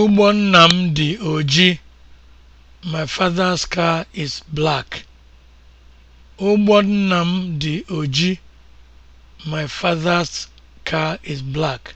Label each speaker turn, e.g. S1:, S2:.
S1: ugbo nna m dị oji. My father's car oji. My father's car is black.